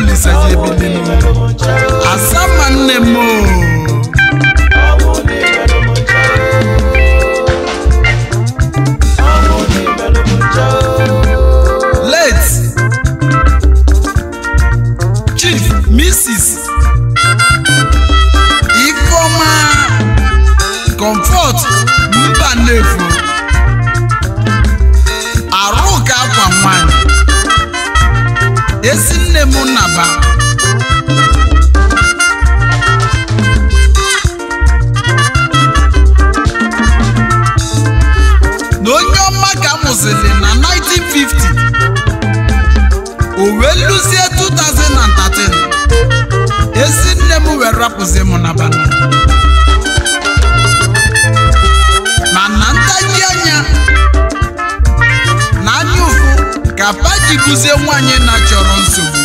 polisi ɛyɛ bi ni asama nne mu. late ikoma comfort mba nnefu arụ ka nwanne na onye ọma ka amụziri na 1950 o wee lụzie 2013 ezi nne m wee rapụzie m n'aba ma na ntaghi anya na ụfụ ka bụzie nwaanyị na chọrọ nsogbu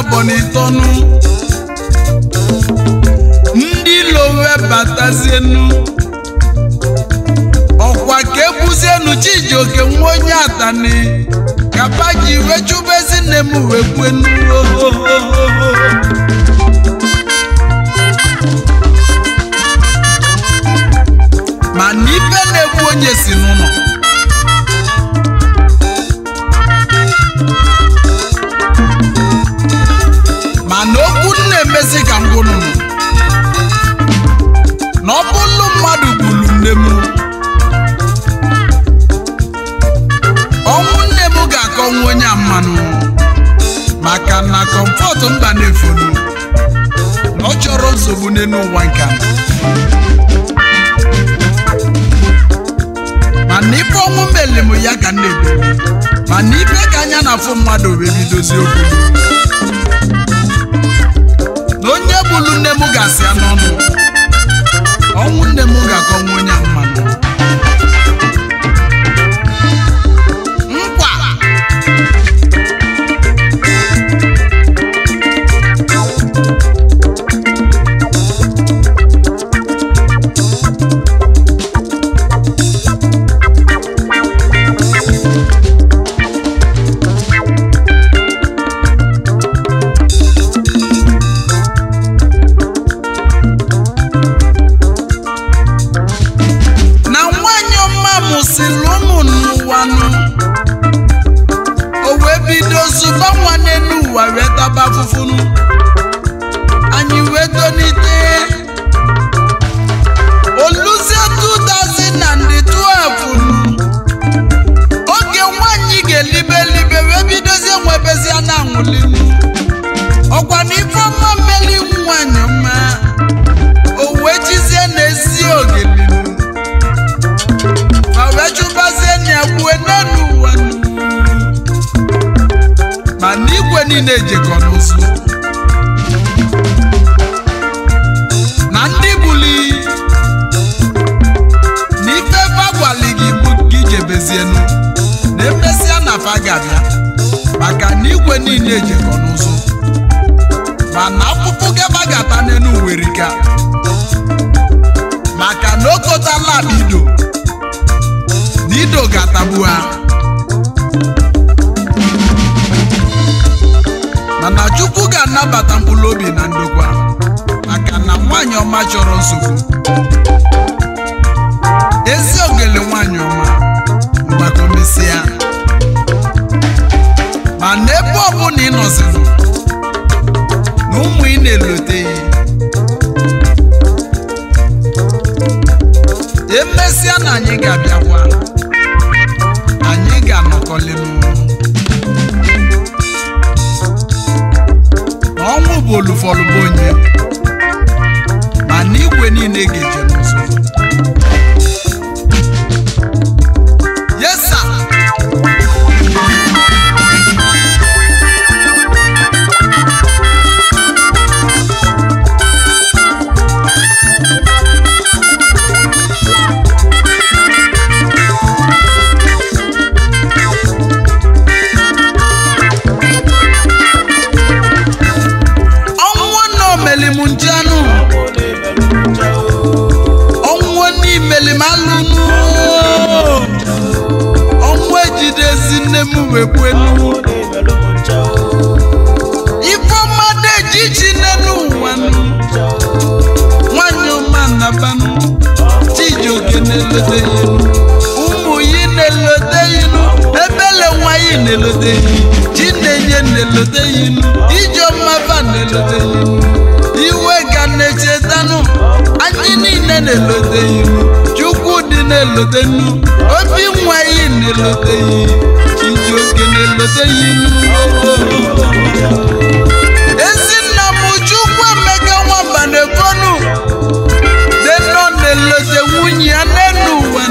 abọnitọnụ ndị lowe batazienu ọkwa ka ebuzienu chijioke nwa onye atani kapa ji wee chụbezi nne m wee nwere nsogbu n'elu ụwa nke a mana ipe ọnwụ meli ya ga na-ebu mana ibe ka anya na-afụ mmadụ wee bidozi okwu na onye bụlu nne m ga-asị ya n'ọnụ ọnwụ nne m ga-akọnwa onye ahụ ụgbọala gị ikwu gị jebezienu na emesịa na afa ga-abịa maka na igwe niile ejekọ n'ụzọ mana akpụkpụ gaba ga-ata n'elu werika maka na okotala ala ido na ido ga-atagbu ha mana chukwu ga-anabata mkpụrụ obi na ndokwa maka na nwaanyị ọma chọrọ nsogbu ọma mgbakomesịa ma n'ebe ọbụla ị nọzirụ na ụmụ ị na-eloteghị emesịa na anyị ga-abịakwa anyị ga-anọkọlịnụ ọnwụ bụ olufọlụbụ onye ma na niile ga eje lote obi nwa yi na-elote yi chiji oke na ezinna m Chukwu Emeka nwamba na-ekonu deno na-elote nwunye ya n'enu ụwa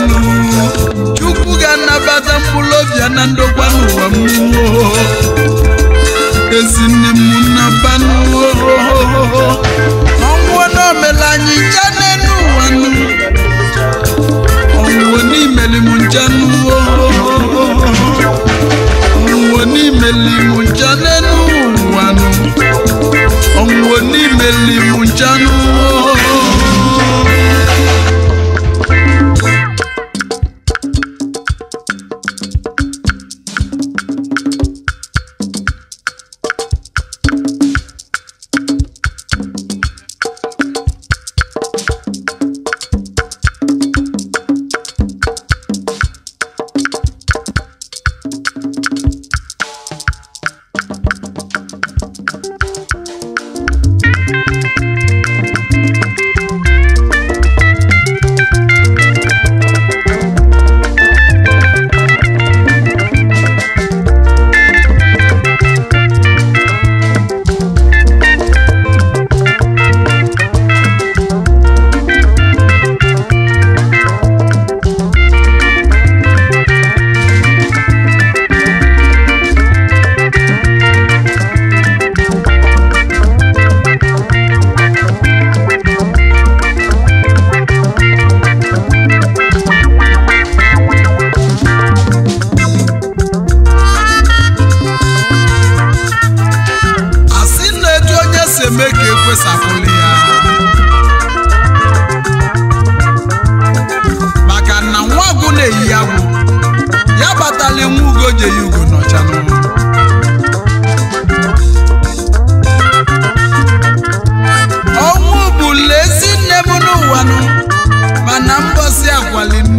Chukwu ga-anabata mkpụrụ obi ya na ndokwa n'ụwa m el chano.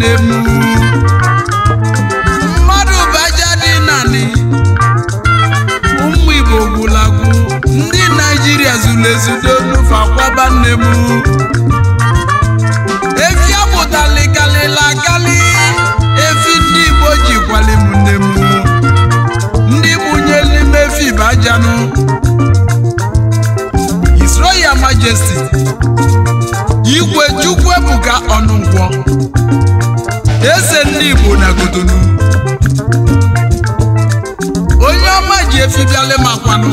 nne igbo na godonu onye ọma ji efi bịala makwanụ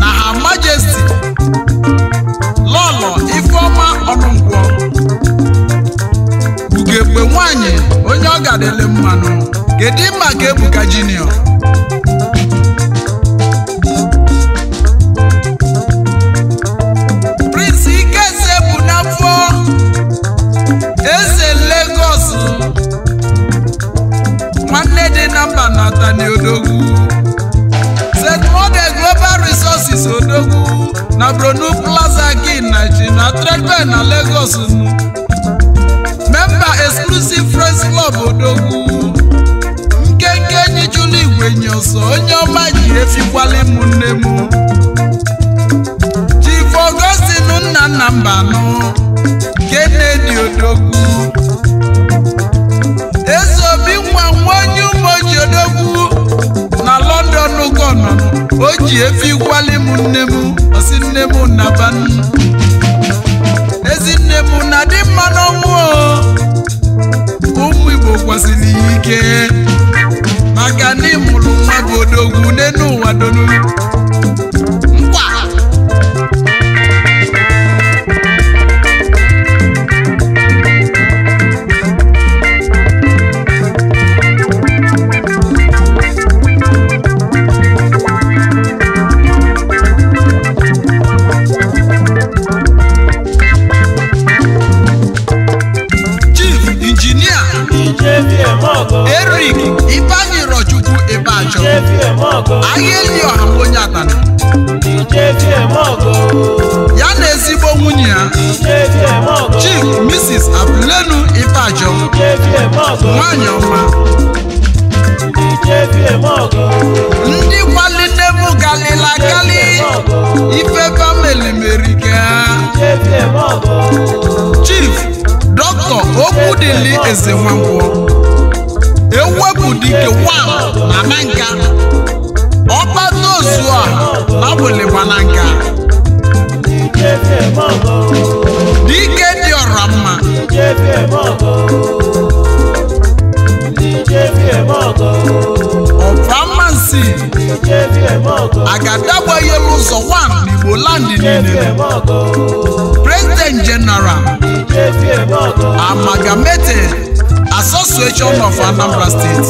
na ha majesti lọlọ ifeọma ọnụnkwọ ugegbe nwanyị onye ọ gadele mmanụ kedu mma ka ebuka jiniọ nwanne dị na mba natani Atani Odogwu St. Mode Global Resources Odogwu na Bronu Plaza gin na ji na Tredbe na Lagos memba Exclusive Friends Club Odogwu nkenke enyi jụlụ igwe nye ọsọ onye ọma ji efikwala mụ nne m Chief Augustine nna nna mba nne dị Odogwu ji odogwu na london ugonna o ji efi gwali m nne m osi nne m ezi nne m na dị mma n'ọnwụ ụmụ igbo kwasịrị ya ike maka na ịmụrụ nwa bụ odogwu n'enu ụwa donu adịli eze nwankwọ ewepụ dike wam na nanka ọkpata ozu a na wụlịgba na nka dike dị ọra mma ga agadagbaghị elu ụzọ wan n'igbo landị niile Accountant General, Amalgamated Association of Anambra State.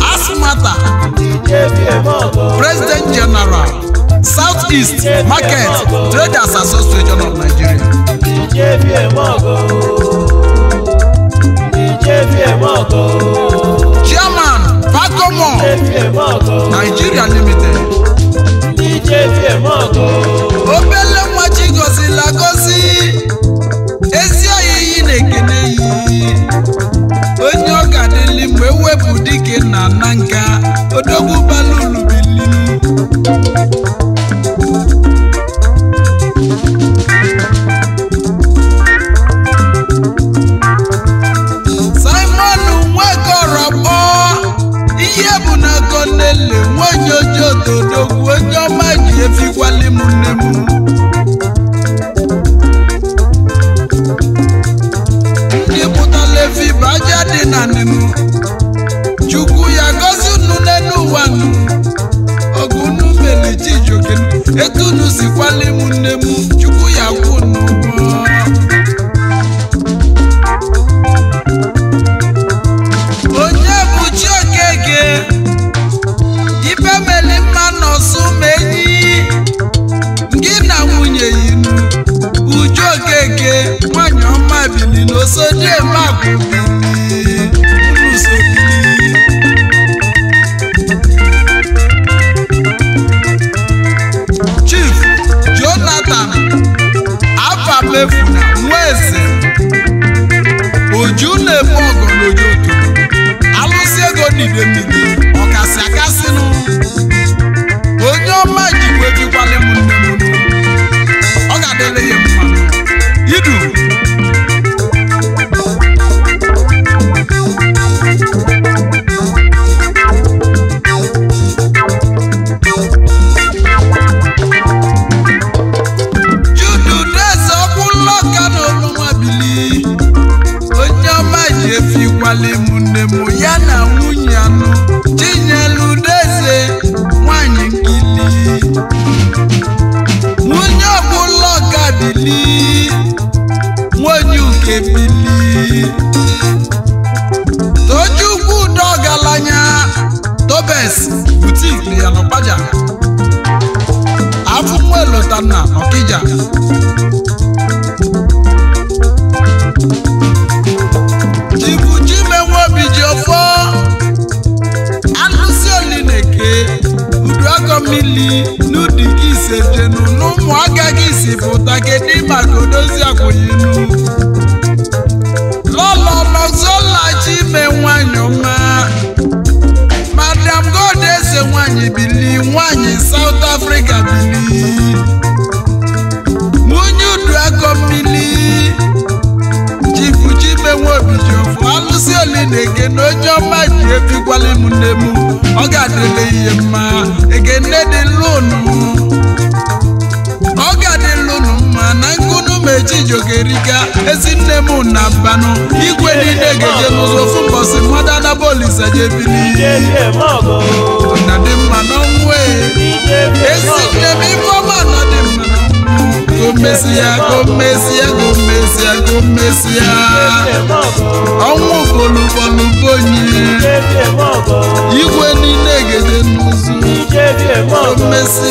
Asmata, President General, Southeast Market Traders Association of Nigeria. Chairman Pacomo, Nigeria Limited. firmando. eke nwanyị ọma bili n'oso dieme agwa Chief Jonathan afamefuna nwa eze oju na-eme ọgọ n'ojoto alụsị ego n'idemide Abes boutique ya n'Ọkpaja afunwe na Ọkija Chibu Chimenwe Obi ji ọfọ alụsi oli na-eke uduagọmmili n'udi gị ise jenu n'ụmụaka gị si pụta kedu maka odozi akwụyinu lọlọlọzọla Chimenwe anyọma nne m ọ ga adịrị ihe mma ekene dị lụnụ ọ ga-adị lụnụ mma na nkụnụ ma ejijogeriga ezi nne m na igwe niile ga-eje n'ụzọ ofu mbọsị mmadụ anabolisa jebili na dị mma n'ọnwụ e. ezi nne m ọma na dị mma e. gomesi ya miss Mrs.